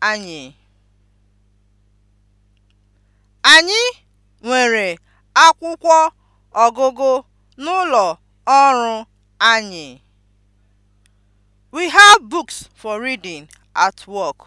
anyị. Anyị nwere akwụkwọ ọgụgụ n'ụlọ ọrụ anyị. We have books for reading at work.